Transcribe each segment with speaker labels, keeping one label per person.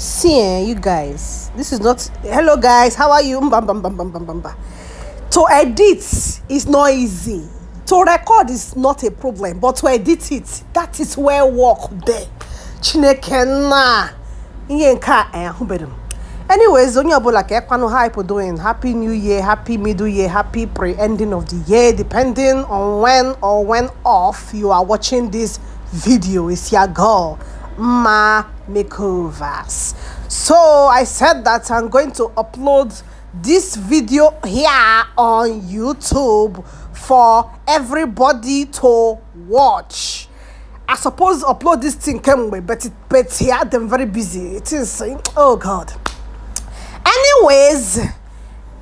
Speaker 1: see eh, you guys this is not hello guys how are you bam, bam, bam, bam, bam, bam, bam. to edit is not easy to record is not a problem but to edit it that is where work there chineke na ihe nke eh, a ahụbeghị m anyways onye ọbụla ka ekwanụ hype doing happy new year happy middle year happy pre-ending of the year depending on when or when off you are watching this video is your girl mma makeovers so i said that i'm going to upload this video here on youtube for everybody to watch i suppose upload this thing came away, but it but here yeah, them very busy it is oh god anyways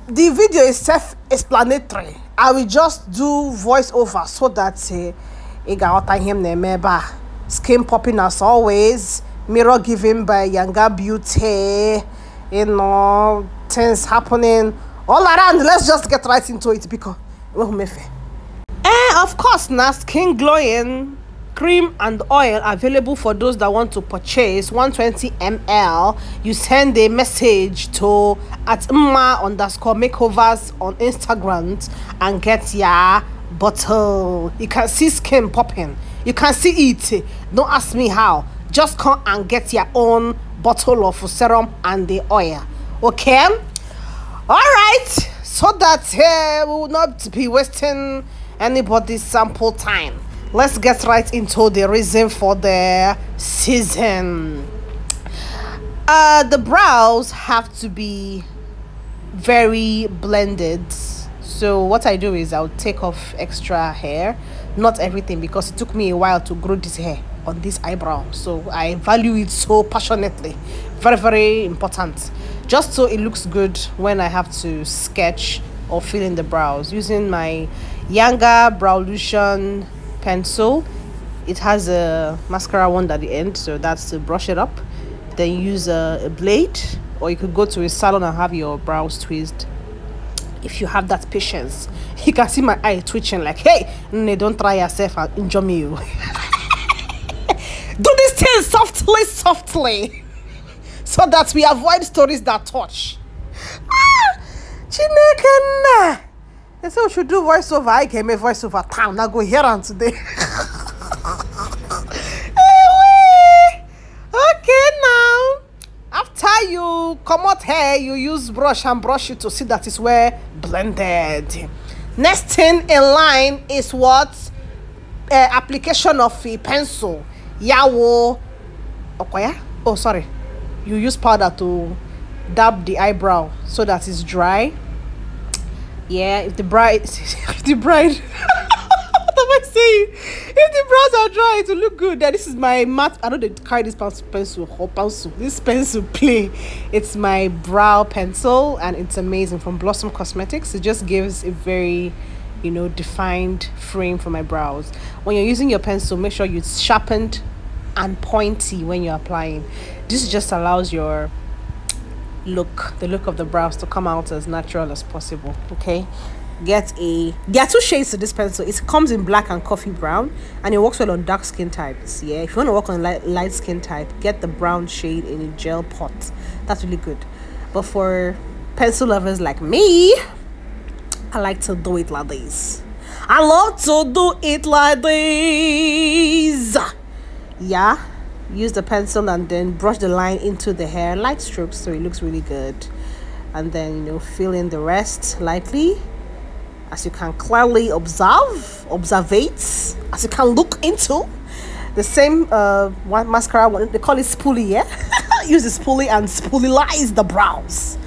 Speaker 1: the video is self-explanatory i will just do voiceover so that uh, ị ga-aghọta ihe skin popping as always mirror given by Yanga Beauty, you know, things happening all around. Let's just get right into it because oh, Eh, of course, now skin glowing cream and oil available for those that want to purchase 120 ml you send a message to at mma underscore makeovers on instagram and get your bottle you can see skin popping you can see it don't ask me how just come and get your own bottle of serum and the oil okay all right so that uh, we will not be wasting anybody's sample time let's get right into the reason for the season uh the brows have to be very blended so what i do is i'll take off extra hair not everything because it took me a while to grow this hair on this eyebrow so i value it so passionately very very important just so it looks good when i have to sketch or fill in the brows using my Yanga Browlution pencil it has a mascara wand at the end so that's to brush it up then use a, a blade or you could go to a salon and have your brows twist if you have that patience you can see my eye twitching like hey don't try yourself and injure me oh. Do this thing softly, softly, so that we avoid stories that touch. Ah, They say we should do voiceover. I came a voiceover town. now go here on today. okay now after you come out hair you use brush and brush it to see that it's well blended next thing in line is what uh, application of a pencil yawo Okoya. oh sorry you use powder to dab the eyebrow so that it's dry yeah if the bride if the bride what am i saying if the brows are dry it will look good then this is my matte i know they carry this pencil or pencil this pencil play it's my brow pencil and it's amazing from blossom cosmetics it just gives a very you know defined frame for my brows when you're using your pencil make sure you sharpened and pointy when you're applying this just allows your look the look of the brows to come out as natural as possible okay get a there are two shades to this pencil it comes in black and coffee brown and it works well on dark skin types yeah if you want to work on light, light skin type get the brown shade in a gel pot that's really good but for pencil lovers like me I like to do it like this. I love to do it like this. Yeah. Use the pencil and then brush the line into the hair, light strokes, so it looks really good. And then, you know, fill in the rest lightly. As you can clearly observe, observate, as you can look into. The same uh, one mascara, they call it spoolie, yeah? Use the spoolie and spoolie lies the brows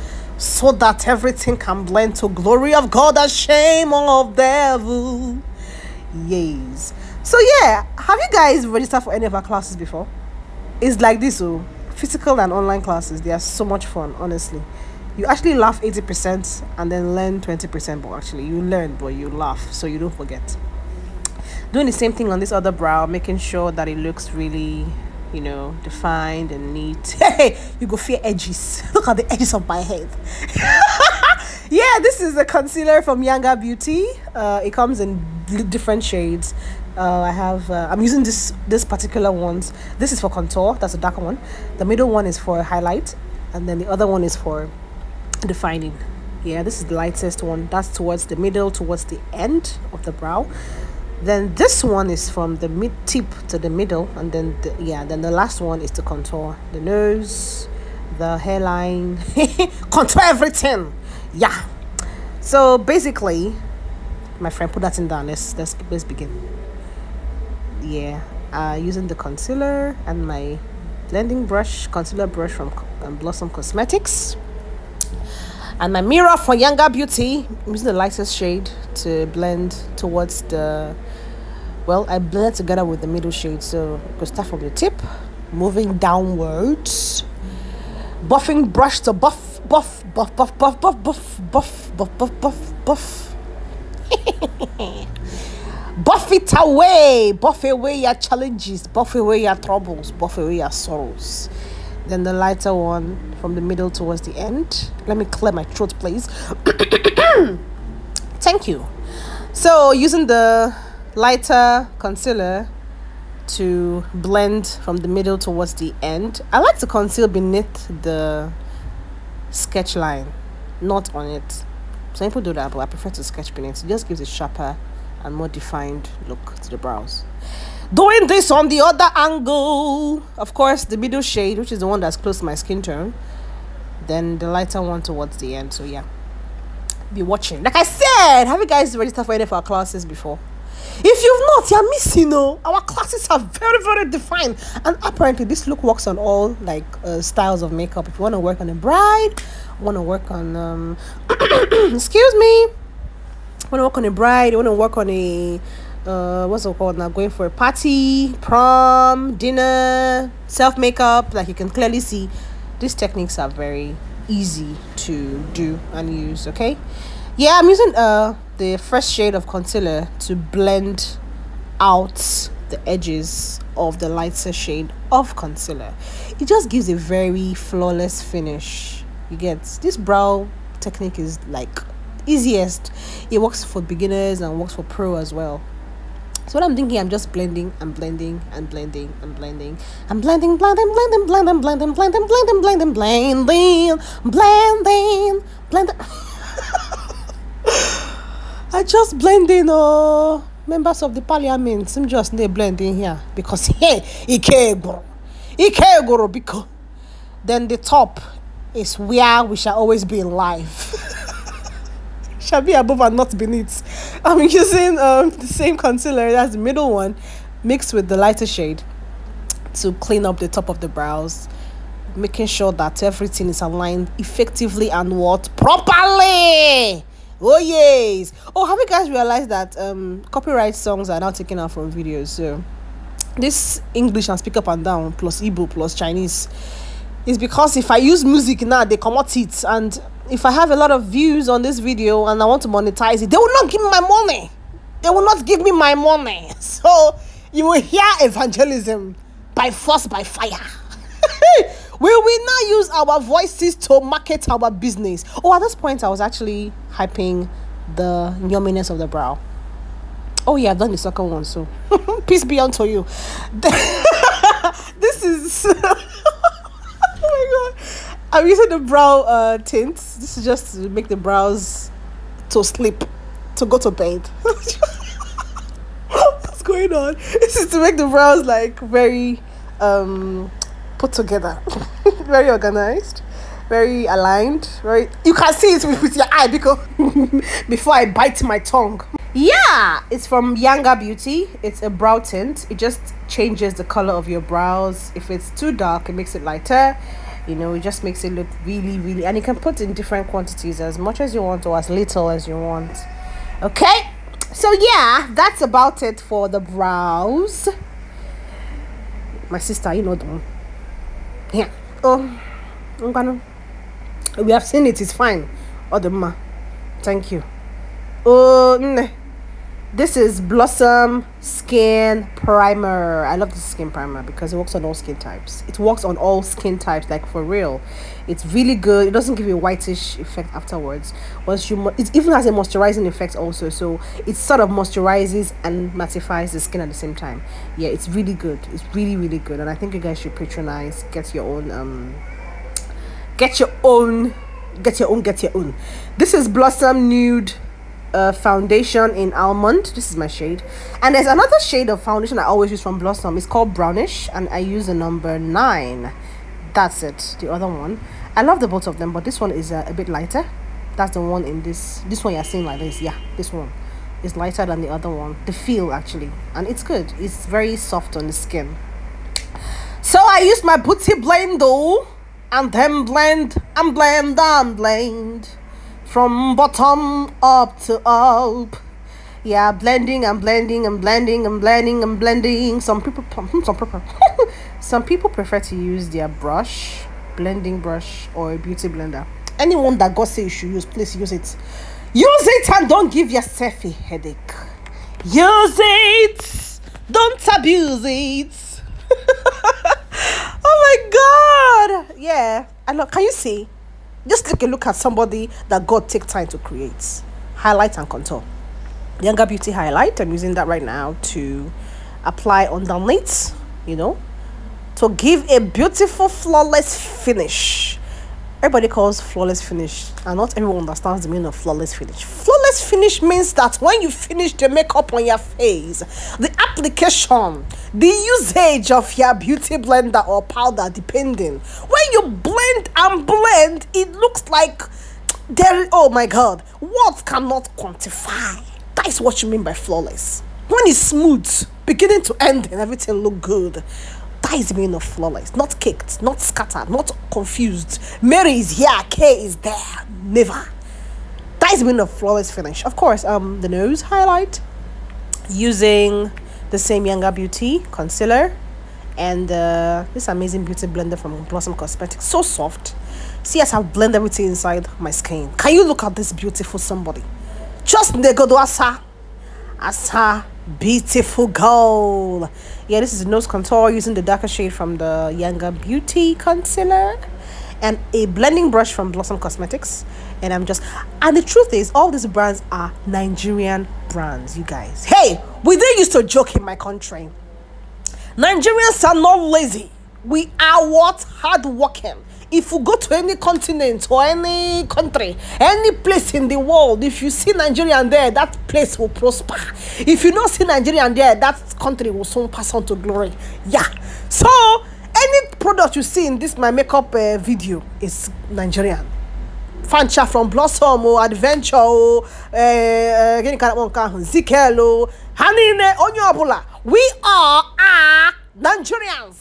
Speaker 1: so that everything can blend to glory of God and shame of devil. Yes. So yeah, have you guys registered for any of our classes before? It's like this, oh, physical and online classes. They are so much fun, honestly. You actually laugh eighty percent and then learn twenty percent. But actually, you learn, but you laugh, so you don't forget. Doing the same thing on this other brow, making sure that it looks really you know, defined and neat. Hey, you go fear edges. Look at the edges of my head. yeah, this is a concealer from Yanga Beauty. Uh, it comes in different shades. Uh, I have uh, I'm using this this particular one. This is for contour. That's a darker one. The middle one is for highlight, and then the other one is for defining. Yeah, this is the lightest one. That's towards the middle, towards the end of the brow then this one is from the mid tip to the middle and then the, yeah then the last one is to contour the nose the hairline contour everything yeah so basically my friend put that in down let's let's, let's begin yeah uh using the concealer and my blending brush concealer brush from um, blossom cosmetics and my mirror for younger beauty i'm using the lightest shade to blend towards the well i blend together with the middle shade so we could start from the tip moving downwards buffing brush to buff buff buff buff buff buff buff buff buff buff buff buff buff it away buff away your challenges buff away your troubles buff away your sorrows then the lighter one from the middle towards the end let me clear my throat please thank you so using the lighter concealer to blend from the middle towards the end. I like to conceal beneath the sketch line, not on it. Some people do that, but I prefer to sketch beneath. It just gives a sharper and more defined look to the brows. Doing this on the other angle, of course, the middle shade, which is the one that's close to my skin tone, then the lighter one towards the end. So yeah, be watching. Like I said, have you guys registered for any of our classes before? If you've not, you're missing. Oh, our classes are very, very defined, and apparently this look works on all like uh, styles of makeup. If you want to work on a bride, want to work on um, excuse me, want to work on a bride, want to work on a uh, what's it called now? Going for a party, prom, dinner, self makeup. Like you can clearly see, these techniques are very easy to do and use. Okay yeah i'm using uh the fresh shade of concealer to blend out the edges of the lighter shade of concealer it just gives a very flawless finish you get this brow technique is like easiest it works for beginners and works for pro as well so what I'm thinking, I'm just blending and blending and blending and blending. I'm blending, blending, blending, blending, blending, blending, blending, blending, blending, blending, blending. I just blend in, oh, members of the parliament. I'm just they blend in here because hey, Ikegoro, Ikegoro, because then the top is where we shall always be in life. shall be above and not beneath. I'm using um, the same concealer, as the middle one, mixed with the lighter shade to clean up the top of the brows making sure that everything is aligned effectively and what properly Oh yes. Oh, have you guys realized that um copyright songs are now taken out from videos? So this English and speak up and down plus Igbo plus Chinese is because if I use music now, they come out it. And if I have a lot of views on this video and I want to monetize it, they will not give me my money. They will not give me my money. So you will hear evangelism by force, by fire. Will we now use our voices to market our business? Oh, at this point, I was actually hyping the yumminess of the brow. Oh, yeah, I've done the second one, so peace be unto you. this is. oh my god. I'm using the brow uh, tint. This is just to make the brows to sleep, to go to bed. What's going on? This is to make the brows like very um, put together very organized, very aligned, very you can see it with, with your eye because before I bite my tongue. Yeah, it's from Younger Beauty. It's a brow tint. It just changes the color of your brows. If it's too dark, it makes it lighter. You know, it just makes it look really, really and you can put in different quantities as much as you want or as little as you want. Okay? So yeah, that's about it for the brows. My sister, you know them. Yeah. oh ngwanụ we have seen it is fine ọ dị mma thank you oh nne this is blossom skin primer i love this skin primer because it works on all skin types it works on all skin types like for real it's really good it doesn't give you a whitish effect afterwards once you it even has a moisturizing effect also so it sort of moisturizes and mattifies the skin at the same time yeah it's really good it's really really good and i think you guys should patronize get your own um get your own get your own get your own this is blossom nude uh, foundation in almond this is my shade and there's another shade of foundation i always use from blossom it's called brownish and i use the number nine that's it the other one i love the both of them but this one is uh, a bit lighter that's the one in this this one you're seeing like this yeah this one is lighter than the other one the feel actually and it's good it's very soft on the skin so i used my booty blend though and then blend and blend and blend from bottom up to up. Yeah, blending and blending and blending and blending and blending. Some people, some hmm, people, some people prefer to use their brush, blending brush or a beauty blender. Anyone that God says you should use, please use it. Use it and don't give yourself a headache. Use it. Don't abuse it. oh my God. Yeah. I know. Can you see? Just take a look at somebody that God take time to create. Highlight and contour. Younger Beauty Highlight, I'm using that right now to apply on the you know, to give a beautiful, flawless finish. Everybody calls flawless finish, and not everyone understands the meaning of flawless finish. Just finish means that when you finish the makeup on your face, the application, the usage of your beauty blender or powder, depending. When you blend and blend, it looks like there. Oh my God, words cannot quantify. That is what you mean by flawless. When it's smooth, beginning to end, and everything look good. That is the meaning of flawless. Not caked, not scattered, not confused. Mary is here, K is there. Never that has been a flawless finish. Of course, um, the nose highlight using the same Younger Beauty concealer and uh, this amazing beauty blender from Blossom Cosmetics. So soft. See as I've blended everything inside my skin. Can you look at this beautiful somebody? Just Negodo Asa. Asa beautiful girl. yeah this is nose contour using the darker shade from the younger beauty concealer and a blending brush from blossom cosmetics and i'm just and the truth is all these brands are nigerian brands you guys hey we didn't used to joke in my country nigerians are not lazy we are what hardworking if you go to any continent or any country, any place in the world, if you see Nigerian there, that place will prosper. If you don't see Nigerian there, that country will soon pass on to glory. Yeah. So, any product you see in this my makeup uh, video is Nigerian. Fancha from Blossom or oh, Adventure o gịnị ka na-akpọ nke ahụ Zikel o we are a ah, Nigerians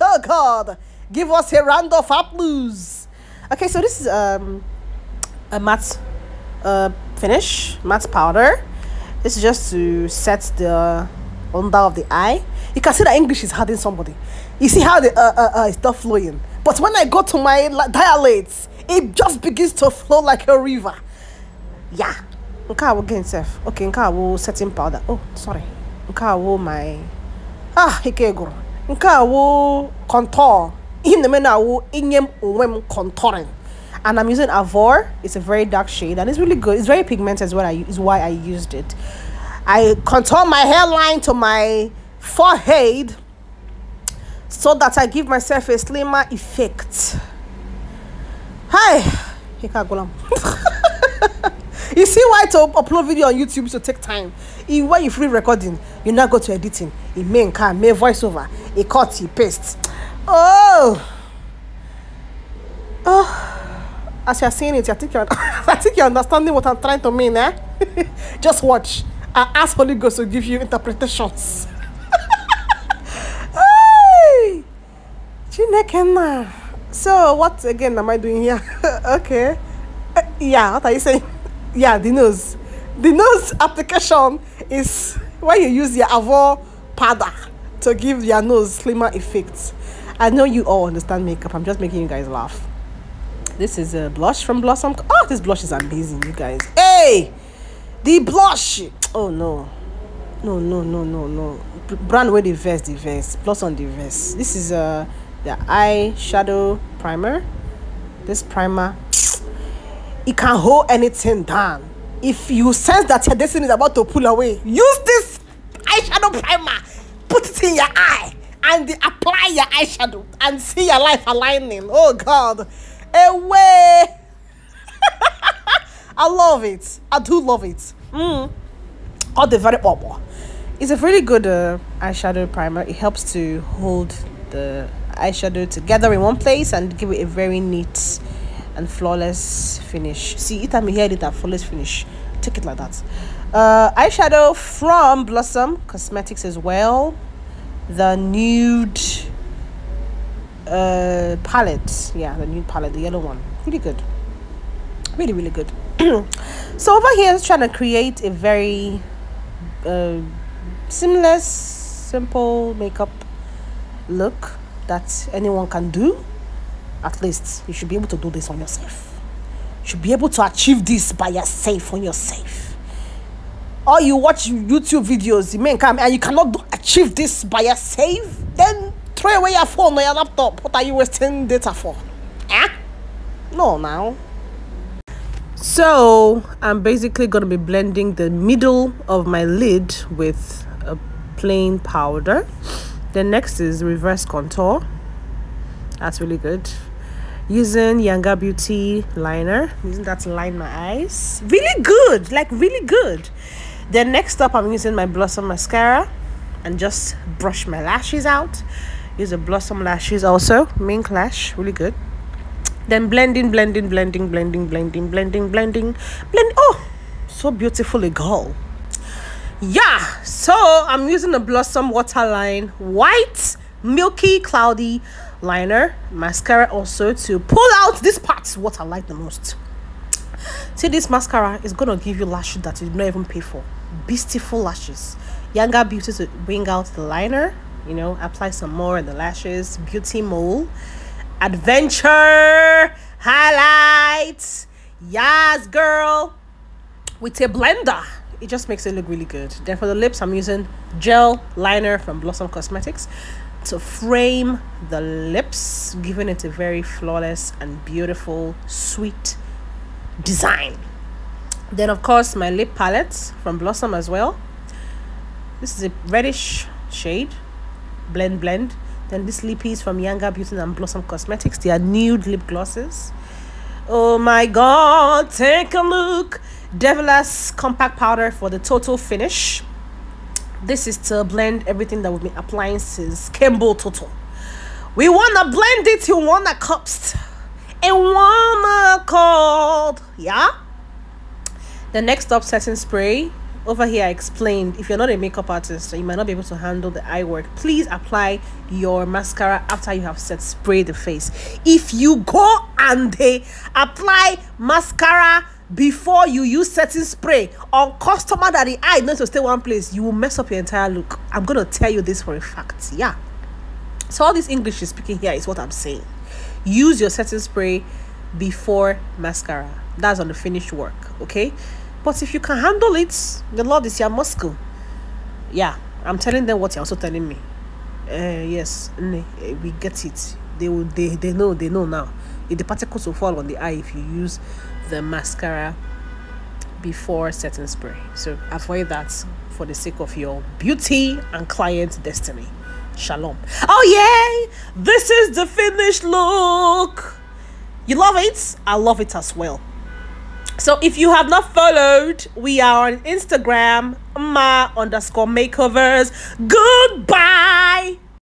Speaker 1: oh God give us a round of applause okay so this is um, a matte uh, finish matte powder this is just to set the under of the eye you can see that English is hurting somebody you see how the uh, uh, uh, is flowing but when I go to my dilates it just begins to flow like a river. Yeah. I will get self. Okay, I will setting powder. Oh, sorry. Okay, I will my ah ike gwụrụ. Okay, i will contour. Ihe na-eme na awụ inye m onwe contouring. And I'm using Avor. It's a very dark shade and it's really good. It's very pigmented is what I is why I used it. I contour my hairline to my forehead so that I give myself a slimmer effect hi hikagulam you see why to upload video on youtube to take time If when you free recording you now go to editing e make nkan make voiceover a cut You paste oh oh as you are seeing it i think you are i think you are understanding what i'm trying to mean eh just watch i ask holy ghost to give you interpretations hey chineke so what again am I doing here? okay. Uh, yeah, what are you saying? yeah, the nose. The nose application is when you use your avo powder to give your nose slimmer effects. I know you all understand makeup. I'm just making you guys laugh. This is a blush from Blossom. Oh, this blush is amazing, you guys. Hey, the blush. Oh no, no, no, no, no, no. Brand where the vest, the vest. Blossom the vest. This is a. Uh, the eye shadow primer this primer it can hold anything down if you sense that your destiny is about to pull away use this eyeshadow primer put it in your eye and apply your eyeshadow and see your life aligning oh god away i love it i do love it mm. all the very bubble it's a really good uh, eyeshadow primer it helps to hold the eyeshadow together in one place and give it a very neat and flawless finish see it time you here. it a flawless finish take it like that uh eyeshadow from blossom cosmetics as well the nude uh palette yeah the nude palette the yellow one really good really really good so over here is trying to create a very uh, seamless simple makeup look that anyone can do, at least you should be able to do this on yourself. You should be able to achieve this by yourself, on yourself. Or you watch YouTube videos, you may come and you cannot do, achieve this by yourself, then throw away your phone or your laptop. What are you wasting data for? Eh? No, now. So I'm basically going to be blending the middle of my lid with a plain powder then next is reverse contour that's really good using Yanga Beauty liner. using that to line my eyes. Really good, like really good. Then next up, I'm using my Blossom mascara and just brush my lashes out. Use a Blossom lashes also, Mink Lash, really good. Then blending, blending, blending, blending, blending, blending, blending, blend. Oh, so beautiful a girl yeah so i'm using the blossom waterline white milky cloudy liner mascara also to pull out this part. what i like the most see this mascara is gonna give you lashes that you don't even pay for beautiful lashes younger beauty to bring out the liner you know apply some more in the lashes beauty mole adventure highlights yes girl with a blender it just makes it look really good then for the lips i'm using gel liner from blossom cosmetics to frame the lips giving it a very flawless and beautiful sweet design then of course my lip palette from blossom as well this is a reddish shade blend blend then this lip piece from Younger Beauty and Blossom Cosmetics. They are nude lip glosses. Oh my god, take a look Devilas compact powder for the total finish. This is to blend everything that we've been applying since Campbell Total. We wanna blend it You wanna cups and wanna cold. Yeah. The next up setting spray. Over here, I explained if you're not a makeup artist, you might not be able to handle the eye work. Please apply your mascara after you have set spray the face. If you go and they eh, apply mascara before you use certain spray on customer that the eye knows to stay one place, you will mess up your entire look. I'm gonna tell you this for a fact. Yeah. So all this English is speaking here is what I'm saying. Use your setting spray before mascara. That's on the finished work, okay? But if you can handle it, the Lord is your muscle. Yeah, I'm telling them what you're also telling me. Uh, yes, eh, we get it. They will. They they know. They know now. If the particles will fall on the eye if you use the mascara before setting spray. So avoid that for the sake of your beauty and client destiny. Shalom. Oh, yay! This is the finished look. You love it? I love it as well. So if you have not followed, we are on Instagram, ma underscore makeovers. Goodbye.